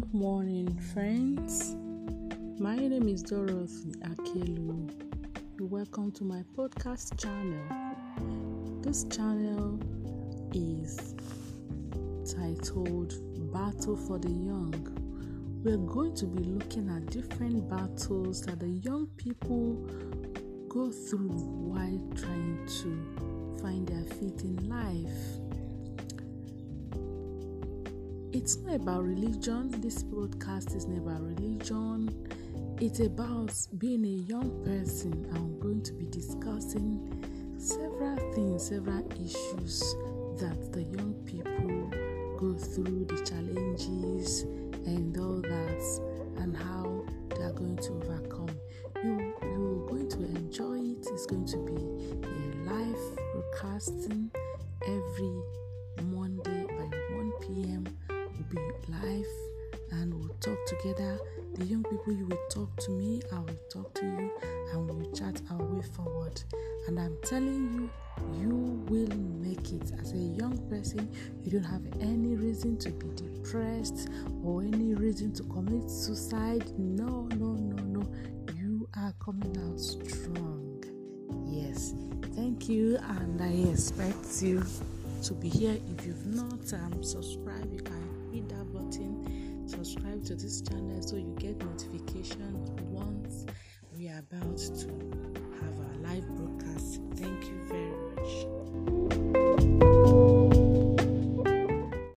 Good morning, friends. My name is Dorothy Akelu. Welcome to my podcast channel. This channel is titled Battle for the Young. We're going to be looking at different battles that the young people go through while trying to find their feet in life. it's not about religion. This broadcast is not about religion. It's about being a young person. I'm going to be discussing several things, several issues that the young people go through, the challenges and all that, and how they are going to overcome. You you're going to enjoy it. It's going to be a live broadcasting. life and we'll talk together. The young people, you will talk to me, I will talk to you, and we'll chat our way forward. And I'm telling you, you will make it. As a young person, you don't have any reason to be depressed or any reason to commit suicide. No, no, no, no. You are coming out strong. Yes. Thank you, and I expect you to be here. If you've not um, subscribed, you can hit that button, subscribe to this channel so you get notification once we are about to